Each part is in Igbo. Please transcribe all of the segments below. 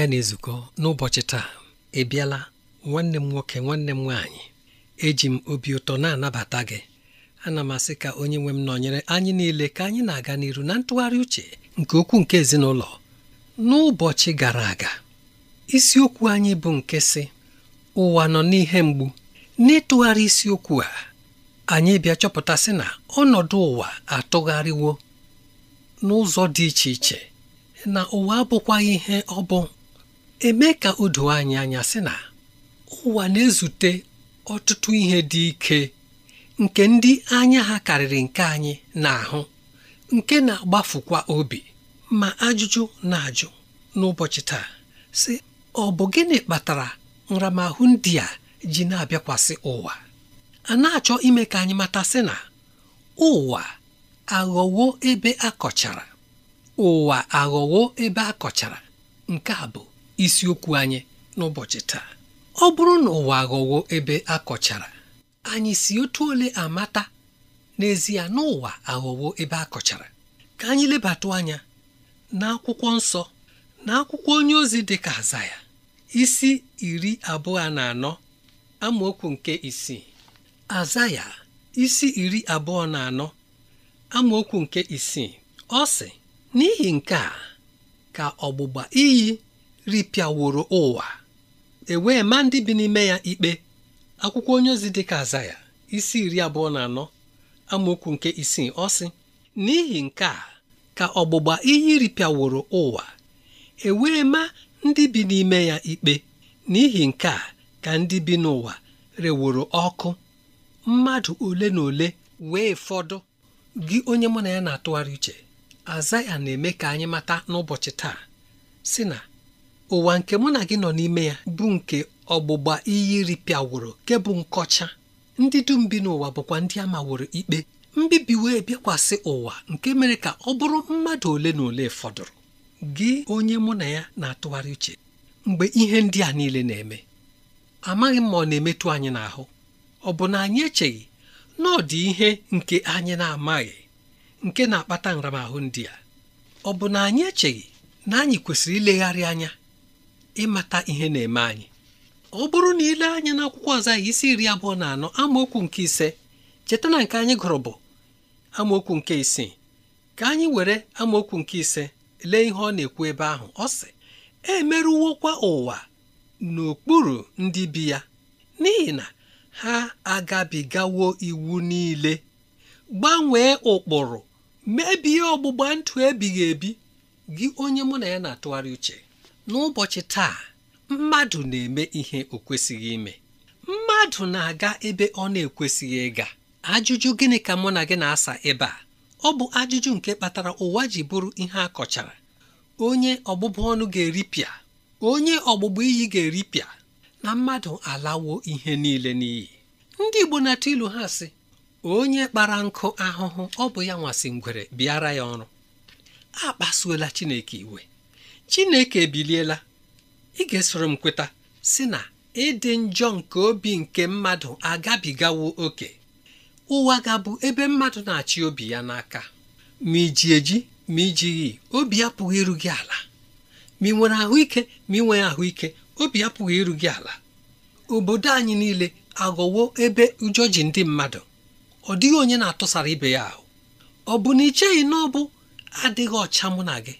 ya na-ezukọ n'ụbọchị taa ị bịala nwanne m nwoke nwanne m nwaanyị eji m obi ụtọ na-anabata gị ana m asị ka onye nwe m nọnyere anyị niile ka anyị na-aga n'iru na ntụgharị uche nke okwu nke ezinụlọ n'ụbọchị gara aga isiokwu anyị bụ nke sị ụwa nọ n'ihe mgbu n'ịtụgharị isiokwu a anyị bịa chọpụtasị na ọnọdụ ụwa atụgharịwo n'ụzọ dị iche iche na ụwa abụkwaghị ihe ọ bụ eme ka o doo anyị anya sị na ụwa na-ezute ọtụtụ ihe dị ike nke ndị anya ha karịrị nke anyị na-ahụ nke na-agbafukwa obi ma ajụjụ na-ajụ n'ụbọchị taa sị ọ bụ gịnị kpatara nramahụ ndị a ji na-abịakwasị ụwa a na-achọ ime ka anyị mata sị na ụwa aghọwo ebe akọchara ụwa aghọwo ebe akọchara nke a bụ isiokwu anyị n'ụbọchị taa ọ bụrụ na ụwa aghọwo ebe akọchara. anyị si otu ole amata n'ezie n'ụwa aghọwo ebe akọchara. ka anyị lebatụ anya n'akwụkwọ nsọ na akwụkwọ onye ozi dị ka azaya isi iri abụọ na anọ amaokwu nke isii Azaya. isi iri abụọ na anọ amaokwu nke isii ọ sị n'ihi nke a ka ọgbụgba iyi ripịaworo ụwa e wee ma ndị bi n'ime ya ikpe akwụkwọ onye ozi ka ka azaya isi iri abụọ na anọ amaokwu nke isii ọ sị n'ihi nke a ka ọgbụgba iyi ripịaworo ụwa e ma ndị bi n'ime ya ikpe n'ihi nke a ka ndị bi n'ụwa reworo ọkụ mmadụ ole na ole wee fọdụ gị onye mụ na ya na-atụgharị uche azaya na-eme ka anyị mata n'ụbọchị taa sị na ụwa nke mụ na gị nọ n'ime ya bụ nke ọgbụgba iyi ripịawụrụ nke bụ nkọcha ndị dum bi n'ụwa bụkwa ndị ama maworo ikpe mbibi wee bịakwasị ụwa nke mere ka ọ bụrụ mmadụ ole na ole fọdụrụ gị onye mụ na ya na-atụgharị uche mgbe ihe ndị a niile na-eme amaghị m ma ọ na-emetụ anyị n'ahụ ọ bụ na anyị echeghị na ọ dị ihe nke anyị na-amaghị nke na-akpata nramahụ ndị a ọ bụ na anyị echeghị na anyị kwesịrị ilegharị anya ịmata ihe na-eme anyị ọ bụrụ na ile anya n'akwụkwọ ọzọ anyị isi iri abụọ na anọ amaokwu nke ise cheta na nke anyị gụrụ bụ amaokwu nke isii ka anyị were amaokwu nke ise lee ihe ọ na-ekwu ebe ahụ ọ sị emerụwokwa ụwa n'okpuru ndị bi ya n'ihi na ha agabigawo iwu niile gbanwee ụkpụrụ mebie ọgbụgba ndụ ebighị ebi gị onye mụ na ya na-atụgharị uche n'ụbọchị taa mmadụ na-eme ihe o kwesịghị ime mmadụ na-aga ebe ọ na-ekwesịghị ịga ajụjụ gịnị ka mụ na gị na-asa ebe a ọ bụ ajụjụ nke kpatara ụwa ji bụrụ ihe a kọchara onye ọgbụgbụ ọnụ ga-eripịa onye ọgbụgbụ iyi ga-eripịa na mmadụ alawo ihe niile n'iyi ndị Igbo na-atụ ilu ha sị onye kpara nkụ ahụhụ ọ bụ ya nwasị ngwere bịara ya ọrụ akpasuola Chineke iwe Chineke ebiliela ị ga-esoro m kweta si na ịdị njọ nke obi nke mmadụ agabigawo oke ụwa ga-abụ ebe mmadụ na-achị obi ya n'aka ma iji eji ma ijighị obi apụghị iru gị ala ma ị nwere ahụike ma ị nwee ahụike obi apụghị iru gị ala obodo anyị niile aghọwo ebe ụjọ ji ndị mmadụ ọ dịghị onye na-atụsara ibe ya ahụ ọ bụ na ị cheghị na ọ bụ adịghị ọcha mụ na gị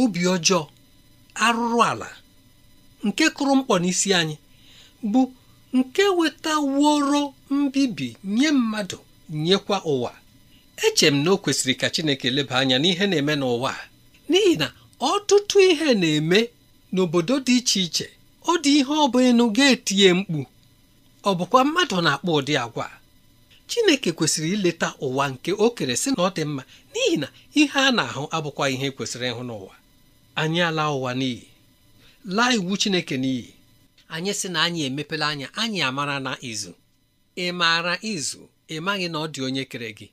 obi ọjọọ arụrụ ala nke kụrụ mkpọ n'isi anyị bụ nke wetaworo mbibi nye mmadụ nyekwa ụwa eche m na o kwesịrị ka Chineke leba anya n'ihe na-eme n'ụwa n'ihi na ọtụtụ ihe na-eme n'obodo dị iche iche ọ dị ihe ọ bụ enu ga-etinye mkpu ọ bụkwa mmadụ na-akpọ ụdị agwa Chineke kwesịrị ileta ụwa nke o kere sị na ọ dị mma n'ihi na ihe a na-ahụ abụkwa ihe kwesịrị ịhụ n'ụwa anyị ala ụwa n'iyi laa iwu chineke n'iyi anyị sị na anyị emepela anya anyị amara na izu ị maara izu ị maghị na ọ dị onye kere gị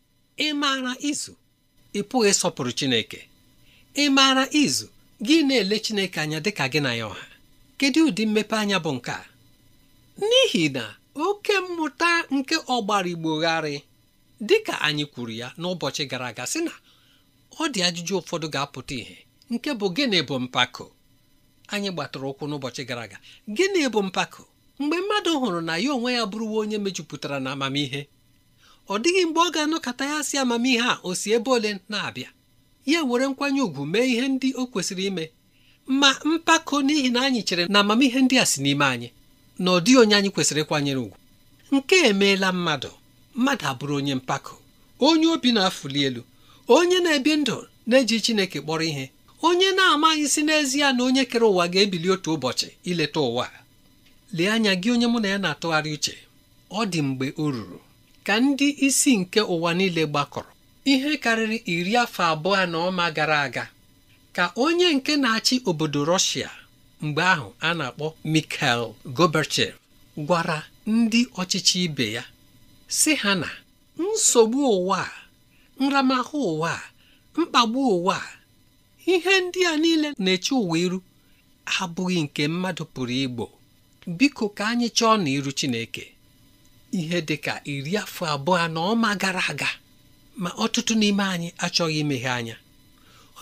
ị maara izu ị pụghị ịsọpụrụ chineke ị maara izu gị na-ele chineke anya dị ka gị na ya ọha kedu ụdị mmepe anya bụ nke a n'ihi na oke mmụta nke ọgbara igbogharị dị ka anyị kwuru ya n'ụbọchị gara aga sị na ọ dị ajụjụ ụfọdụ ga-apụta ìhè nke bụ gịnị bụ mpako anyị gbatụrụ ụkwụ n'ụbọchị gara aga gịnị bụ mpako mgbe mmadụ hụrụ na ya onwe ya bụrụwa onye mejupụtara na amamihe ọ dịghị mgbe ọ ga-anọkọta ya si amamihe a o si ebe ole na-abịa ya were nkwanye ùgwù mee ihe ndị o kwesịrị ime ma mpako n'ihi na anyị chere na amamihe ndị a si n'ime anyị na ọ dịghị onye anyị kwesịrị ịkwanyere ùgwù nke emeela mmadụ mmadụ abụrụ onye mpako onye obi na-afụli elu onye na-ebi ndụ na-eji Chineke kpọrọ ihe onye na-amaghị si n'ezie na onye kere ụwa ga-ebili otu ụbọchị ileta ụwa lee anya gị onye mụ na ya na-atụgharị uche ọ dị mgbe o ruru ka ndị isi nke ụwa niile gbakọrọ ihe karịrị iri afọ abụọ na ọma gara aga ka onye nke na-achị obodo rọshịa mgbe ahụ a na-akpọ Mikhail Gorbachev gwara ndị ọchịchị ibe ya si ha na nsogbu ụwa nramahụ ụwa mkpagbu ụwa ihe ndị a niile na-eche ụwa iru abụghị nke mmadụ pụrụ igbo biko ka anyị chọọ na iru Chineke ihe dị ka iri afọ abụọ na ọma gara aga ma ọtụtụ n'ime anyị achọghị imeghe anya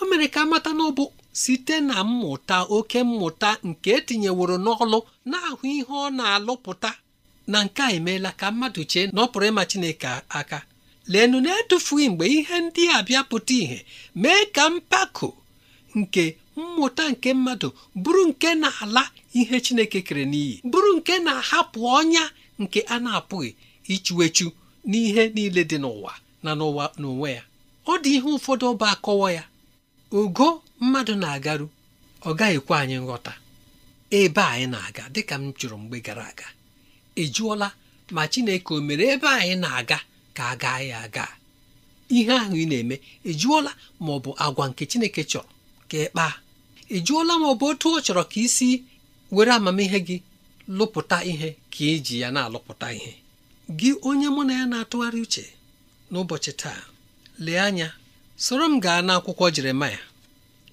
o mere ka amata na ọ bụ site na mmụta oke mmụta nke etinyeworo n'ọlụ na-ahụ ihe ọ na-alụpụta na nke a emeela ka mmadụ chee na ịma Chineke aka leenụ na-etufughị mgbe ihe ndị a bịa pụta ìhè mee ka mpako nke mmụta nke mmadụ bụrụ nke na-ala ihe Chineke kere n'iyi bụrụ nke na-ahapụ ọnya nke a na-apụghị ichuechu n'ihe niile dị n'ụwa na n'ụwa n'onwe ya ọ dị ihe ụfọdụ ọba akọwa ya ogo mmadụ na-agaru ọ gaghịkwa anyị nghọta ebe anyị na-aga dịka m chụrụ mgbe gara aga ị e jụọla ma Chineke o mere ebe anyị na-aga ka a gaa ya aga ihe ahụ ị na-eme ị e jụọla ma ọ bụ agwa nke Chineke chọrọ ka ị kpaa ị jụọla m ọ bụ otu ọ chọrọ ka isi were amamihe gị lụpụta ihe ka iji e ya na-alụpụta ihe gị onye mụ na ya na-atụgharị uche n'ụbọchị taa lee anya soro m gaa n'akwụkwọ Jeremaya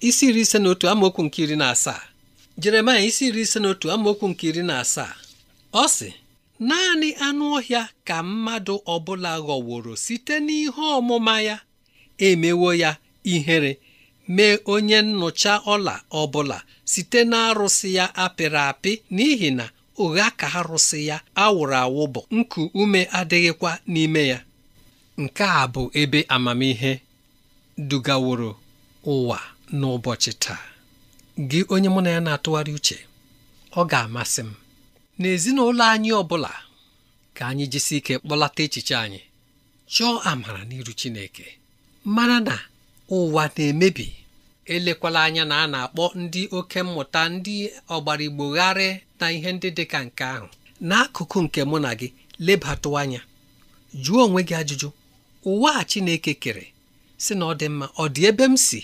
isi iri ise na otu amaokwu nke iri na asaa Jeremaya isi iri ise na otu amaokwu nke iri na asaa ọ sị naanị anụ ọhịa ka mmadụ ọbụla ghọworo site n'ihe ọmụma ya emewo ya ihere mee onye nnụcha ọla ọbụla site na arụsị ya apịrị apị n'ihi na ụgha ka arụsị ya awụrụ awụ bụ nku ume adịghịkwa n'ime ya nke a bụ ebe amamihe dugaworo ụwa n'ụbọchị taa gị onye mụ na ya na-atụgharị uche ọ ga-amasị m n'ezinụlọ anyị ọbụla, ka anyị jisi ike kpọlata echiche anyị chọọ amara n'iru Chineke mara na ụwa na-emebi elekwala anya na a na-akpọ ndị oke mmụta ndị ọgbara ọgbarigbogharị na ihe ndị dị ka nke ahụ n'akụkụ nke mụ na gị lebatụ anya jụọ onwe gị ajụjụ ụwa a Chineke kere sị na ọ dị mma ọ dị ebe m si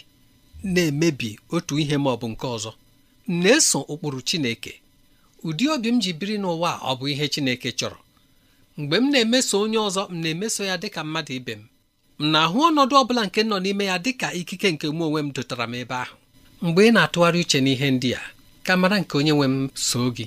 na-emebi otu ihe ma ọ bụ nke ọzọ m na-eso ụkpụrụ Chineke ụdị obi m ji biri n'ụwa ọ bụ ihe Chineke chọrọ mgbe m na-emeso onye ọzọ m na-emeso ya dị ka mmadụ ibe m m na-ahụ ọnọdụ ọ bụla nke nọ n'ime ya dị ka ikike nke mụ onwe m dotara m ebe ahụ mgbe ị na-atụgharị uche n'ihe ndị a ka mara nke onye nwe m soo gị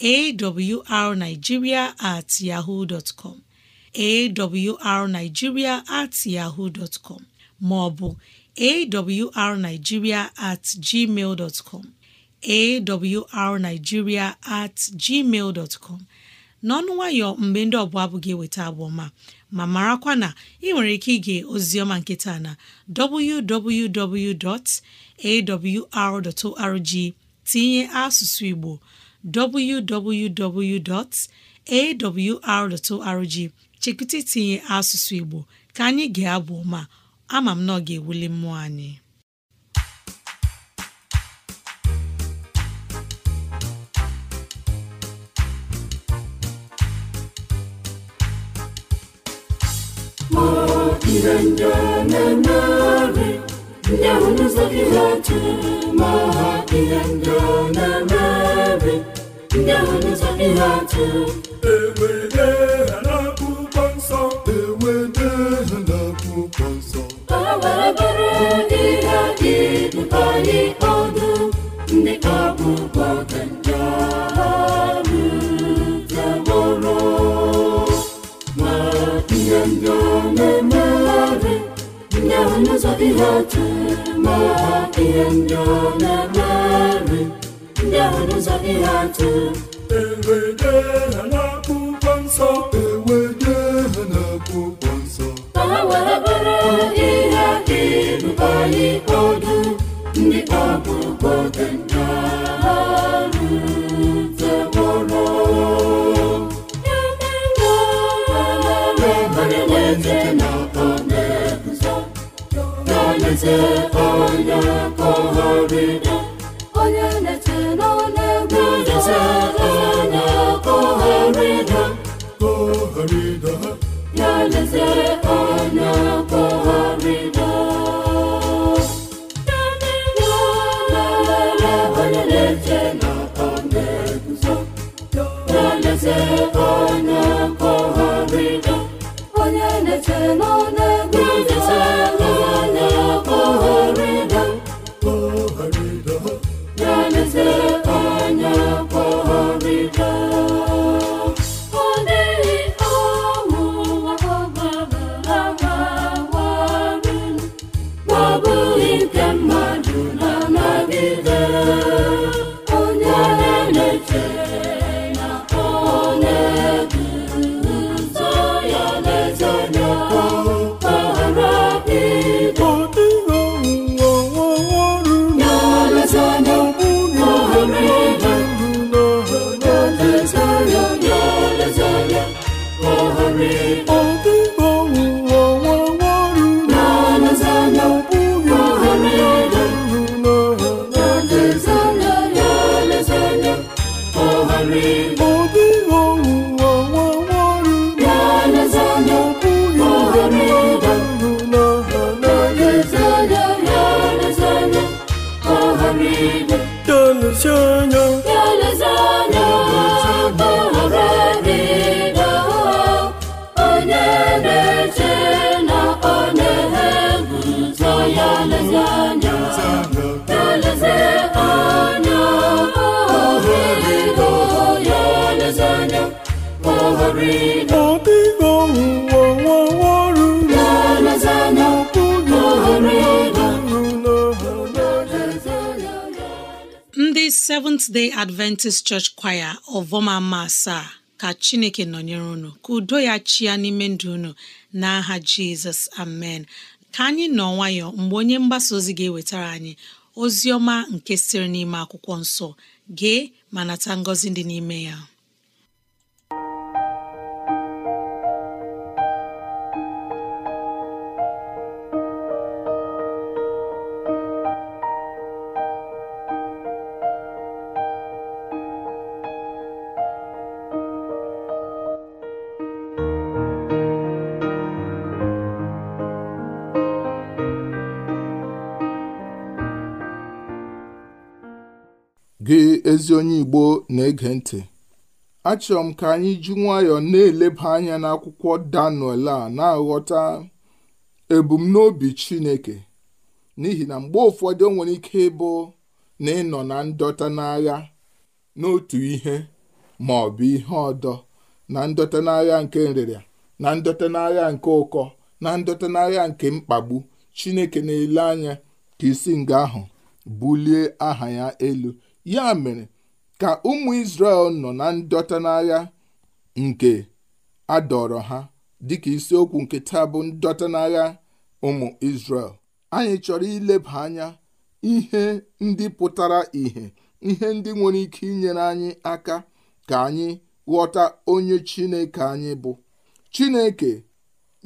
awrnigeria at yahoo dot com awrnigeria at yahoo dot com maọbụ awrnigeria at gmail dot com awrnigeria at gmail dot n'ọnụ nwayọ mgbe ndị ọbụla abụ gị eweta abụọ ma marakwa na ị nwere ike ige ozioma nkịta na www.awr.org tinye asụsụ Igbo www.awr.org chekwụta itinye asụsụ Igbo ka anyị ga-abụ ma ama m na ọ ga-ewuli mmụọ anyị ihe ndị na Damu zake zote mahakingangana nabi Damu zake zote ewe n'otu ihe ndị ọ na-eme nri ndị ahụ n'ụzọ ihe atụ cơn Seventh Day Adventist Church Choir ọvọmama asaa ka Chineke nọnyere unu ka udo ya chia n'ime ndụ unu na aha Jizọs amen ka anyị nọ nwayọ mgbe onye mgbasa ozi ga-ewetara anyị ozi ọma nke sịrị n'ime akwụkwọ nsọ gee ma nata ngọzi dị n'ime ya ezi onye Igbo na-ege ntị achọrọ m ka anyị ji nwayọọ na-eleba anya n'akwụkwọ Daniel a na-aghọta ebumnobi Chineke n'ihi na mgbe ụfọdụ o nwere ike ịbụ na ịnọ na ndọta n'agha n'otu ihe ma ọ bụ ihe ọdọ na ndọta n'agha nke nrịrịa na ndọta n'agha nke ụkọ na ndọta n'agha nke mkpagbu Chineke na-ele anya ka isi nga ahụ bulie aha ya elu ya mere ka ụmụ Izrel nọ na ndọta n'agha nke adọrọ ha dịka isiokwu nke taa bụ ndọta n'agha ụmụ Izrel anyị chọrọ ileba anya ihe ndị pụtara ihe ihe ndị nwere ike inyere anyị aka ka anyị ghọta onye Chineke anyị bụ Chineke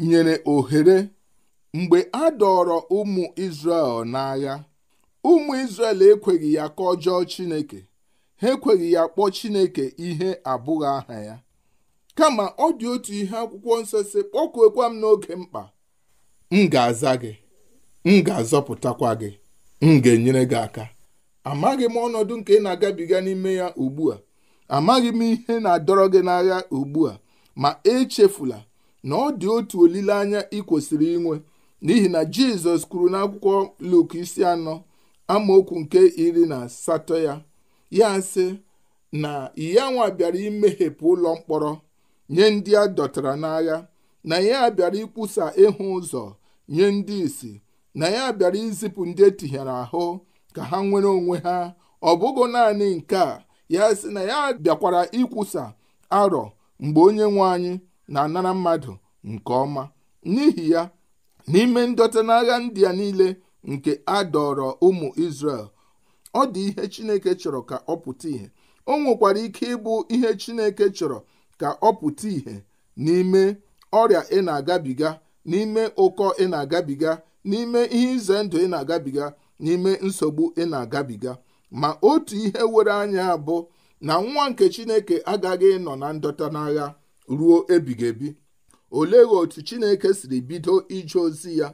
nyere ohere mgbe a dọrọ ụmụ Izrel n'agha ụmụ Izrel ekweghị ya ka ọjọọ Chineke ha ekweghị ya kpọọ Chineke ihe abụghị aha ya kama ọ dị otu ihe akwụkwọ nsọ si kpọkuokwa m n'oge mkpa m ga-aza gị m ga-azọpụtakwa gị m ga-enyere gị aka amaghị m ọnọdụ nke ị na-agabiga n'ime ya ugbu a amaghị m ihe na-adọrọ gị n'agha ugbu a ma echefula na ọ dị otu olileanya ị kwesịrị inwe n'ihi na jizọs kwuru n'akwụkwọ Luk isi anọ amaokwu nke iri na asatọ ya ya sị na iyanwa bịara imeghepụ ụlọ mkpọrọ nye ndị a dọtara n'agha na ya bịara ikwusa ịhụ ụzọ nye ndị isi na ya bịara izipụ ndị etinyere ahụ ka ha nwere onwe ha ọ bụghị naanị nke a ya sị na ya bịakwara ikwusa arọ mgbe onye nwe anyị na-anara mmadụ nke ọma n'ihi ya n'ime ndọta n'agha ndị a niile nke a dọrọ ụmụ israel ọ dị ihe Chineke chọrọ ka ọ pụta ìhè o nwekwara ike ịbụ ihe Chineke chọrọ ka ọ pụta ìhè n'ime ọrịa ị na-agabiga n'ime ụkọ ị na-agabiga n'ime ihe ize ndụ ị na-agabiga n'ime nsogbu ị na-agabiga ma otu ihe were anya bụ na nwa nke Chineke agaghị ịnọ na ndọta n'agha ruo ebighị ebi olee otu Chineke siri bido ije ozi ya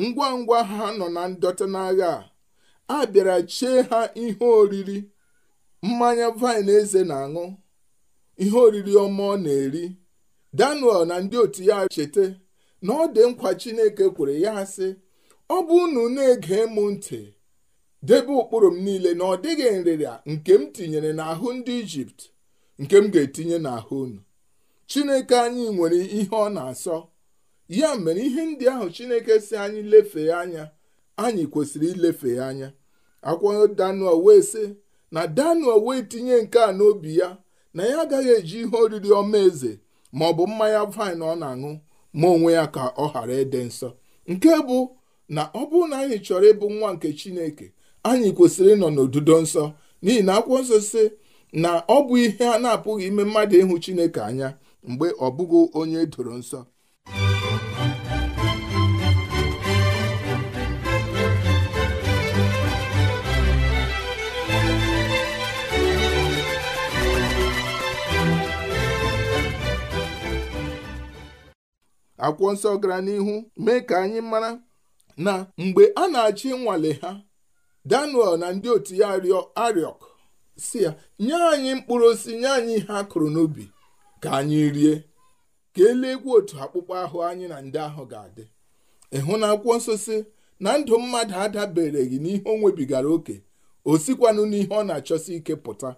ngwa ngwa ha nọ na ndọta n'agha a a bịara chee ha ihe oriri mmanya vaịn eze na-aṅụ ihe oriri ọma ọ na-eri danuel na ndị otu ya cheta na ọ dị nkwa chineke kwere ya sị ọ bụ unu na-ege mụ ntị debe ụkpụrụ m niile na ọ dịghị nrịrịa nke m tinyere n'ahụ ndị ijipt nke m ga-etinye n'ahụ unu chineke anyị nwere ihe ọ na-asọ ya mere ihe ndị ahụ chineke si anyị lefee anya anyị kwesịrị ilefe ya anya akwado danuel wee sị na danuel wee tinye nke a n'obi ya na ya agaghị eji ihe oriri ọma eze ma ọ bụ mmanya vaịn ọ na-aṅụ ma onwe ya ka ọ ghara ịdị nsọ nke bụ na ọ bụrụ na anyị chọrọ ịbụ nwa nke chineke anyị kwesịrị ịnọ n'odudo nsọ n'ihi na akwụkwọ nsọ sị na ọ bụ ihe a na-apụghị ime mmadụ ịhụ chineke anya mgbe ọ bụghị onye e doro nsọ akwụkwọ nsọ gara n'ihu mee ka anyị mara na mgbe a na-achị nwale ha Daniel na ndị otu ya Ariok si ya nye anyị mkpụrụ osisi nye anyị ihe a kụrụ n'ubi ka anyị rie ka eluegwu otu akpụkpọ ahụ anyị na ndị ahụ ga-adị ịhụ na akwụkwọ nsọ si na ndụ mmadụ adabereghị n'ihe o nwebigara oke o sikwanụ n'ihe ọ na-achọsi ike pụta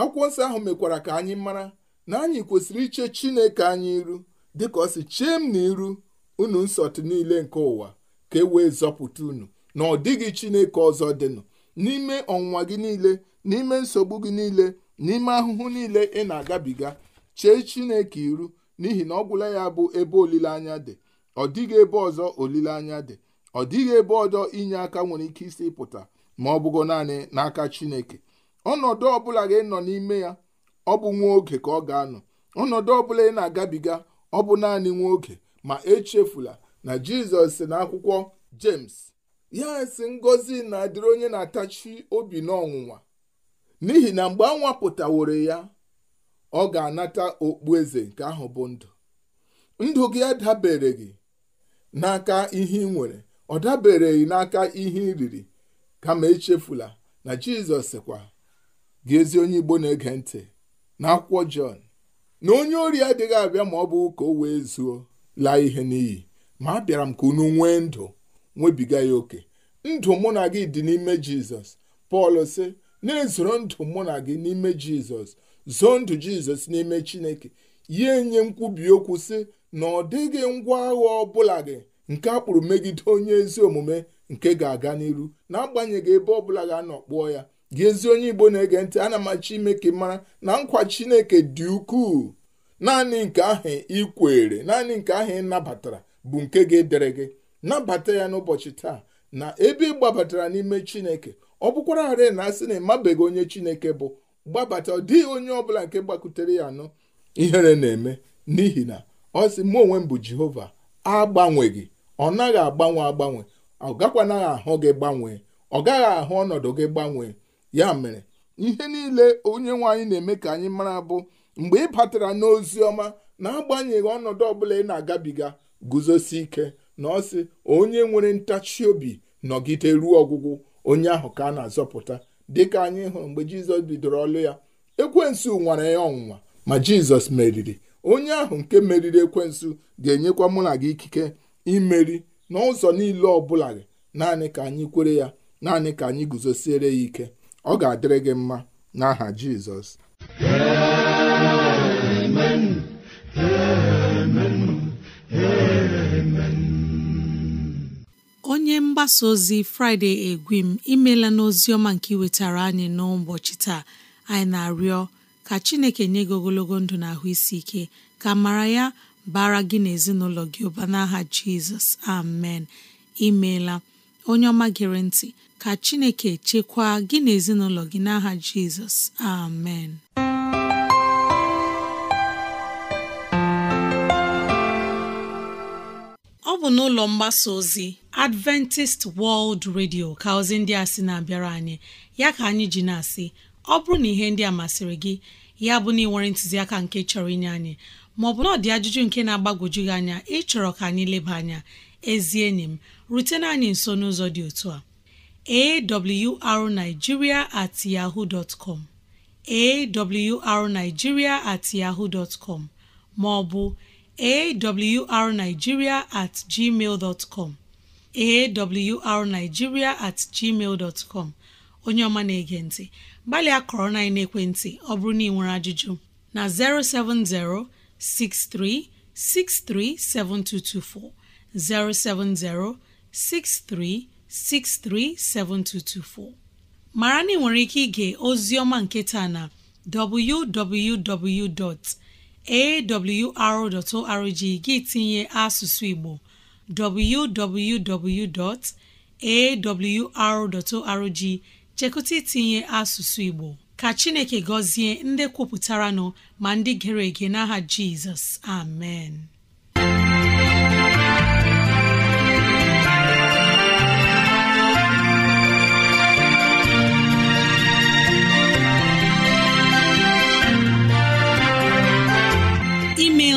akwụkwọ nsọ ahụ mekwara ka anyị mara na anyị kwesịrị iche Chineke anyị iru dịka ọ si chee m n'iru unu nsọtụ niile nke ụwa ka e wee zọpụta unu na ọ dịghị chineke ọzọ dịnụ n'ime ọnwụnwa gị niile n'ime nsogbu gị niile n'ime ahụhụ niile ị na-agabiga chee chineke iru n'ihi na ọ gwụla ya bụ ebe olileanya dị ọ dịghị ebe ọzọ olileanya dị ọ dịghị ebe ọzọ inye aka nwere ike isi pụta ma ọ bụgo naanị n'aka chineke ọnọdụ ọbụla gị nọ n'ime ya ọ bụ nwa oge ka ọ ga-anọ ọnọdụ ọbụla ị na-agabiga ọ bụ naanị nwoke oge ma echefula na jizọs si n'akwụkwọ james ya si ngozi na-adịrị onye na-atachi obi n'ọnwụnwa n'ihi na mgbe a nwere ya ọ ga-anata okpu eze nke ahụ bụ ndụ ndụ gị adabere gị n'aka ihe ị nwere ọ dabereghị n'aka ihe ị riri kama echefula na jizọs sịkwa gị ezi onye igbo na-ege ntị n'akwụkwọ jọn na onye ori adịghị abịa ma ọ bụ ka o wee zuo laa ihe n'iyi ma a bịara m ka unu nwee ndụ nwebiga ya oke ndụ mụ na gị dị n'ime jizọs pọl sị na-ezoro ndụ mụ na gị n'ime jizọs zoo ndụ jizọs n'ime chineke ya enye nkwubi okwu sị na ọ dịghị ngwa agha ọbụla gị nke akpụrụ megide onye ezi omume nke ga-aga n'iru agbanyeghị ebe ọbụla ga-anọ kpụọ ya gị ezi onye igbo na-ege ntị ana machi ime ka mara na nkwa chineke dị ukwuu naanị nke ahụ ikwere naanị nke ahụ ị nabatara bụ nke ga-edere gị nabata ya n'ụbọchị taa na ebe ị gbabatara n'ime chineke ọ bụkwara ghara na asị na ịmabeghị onye chineke bụ gbabata ọ dịghị onye ọbụla nke gbakutere ya anọ ihere na-eme n'ihi na ọ sị mụ onwe m bụ jehova agbanweghị ọ naghị agbanwe agbanwe ọ gakwanaghị ahụ gị gbanwee ọ gaghị ahụ ọnọdụ gị gbanwee ya mere ihe niile onye nwaanyị na-eme ka anyị mara bụ mgbe ị batara n'ozi ọma na-agbanyeghị ọnọdụ ọbụla ị na-agabiga guzosi ike na ọ sị onye nwere ntachi obi nọgide ruo ọgwụgwụ onye ahụ ka a na-azọpụta dịka anyị hụrụ mgbe jizọs bidoro ọlụ ya ekwensu nwara ya ọnwụnwa ma jizọs meriri onye ahụ nke meriri ekwensu ga-enyekwa mụ na gị ikike imeri n'ụzọ niile ọbụla naanị ka anyị kwere ya naanị ka anyị guzosiere ya ike ọ ga-adịrị gị mma n'aha Jizọs onye mgbasa ozi fraịde egwim imela n'ozi ọma nke iwetara anyị n'ụbọchị taa anyị na-arịọ ka Chineke nye gị ogologo ndụ na isi ike ka mara ya bara gị na ezinụlọ gị ụba n'aha Jizọs amen imeela onye ọma gere ntị ka Chineke chekwaa gị na ezinụlọ gị n'aha Jizọs amen ọ bụ n'ụlọ mgbasa ozi Adventist World Radio ka ozi ndị a sị na-abịara anyị ya ka anyị ji na-asị ọ bụrụ na ihe ndị a masịrị gị ya bụ na ị nwere ntụziaka nke chọrọ inye anyị maọbụ na ọ dị ajụjụ nke na-agbagwoju gị anya ịchọrọ ka anyị leba anya ezi enyi m rutena anyị nso n'ụzọ dị otu a awrnigeria at yahoo dot com at yahoo dot com ma awrnigeria at gmail dot com awrnigeria at gmail dot com onye ọma na-ege ntị gbalịa kọrọ na ekwentị ọ bụrụ na ị nwere ajụjụ na 070 63 7224 070 mara na ị nwere ike ige oziọma nke taa na www.awr.org gị tinye asụsụ Igbo www.awr.org chekụta itinye asụsụ Igbo ka Chineke gọzie ndị kwupụtara nọ ma ndị gere ege n'aha Jizọs amen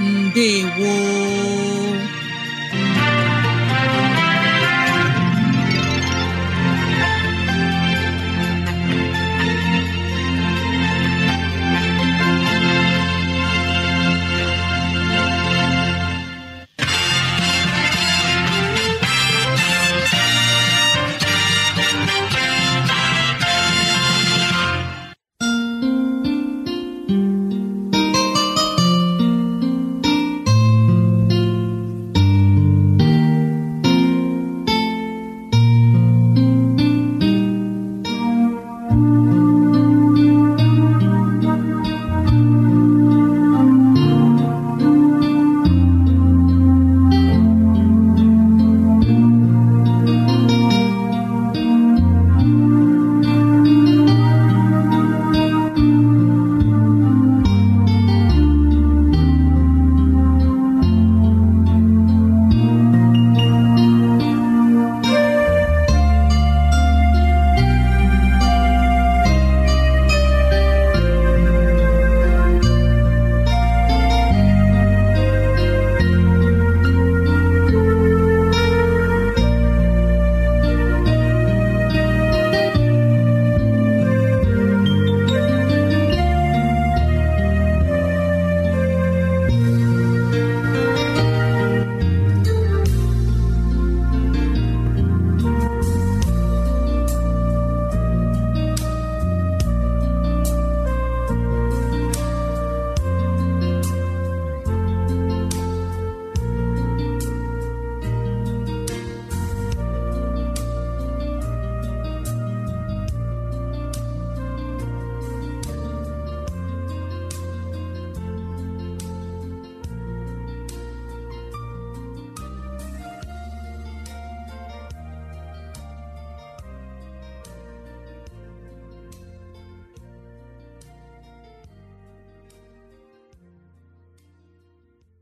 ndewo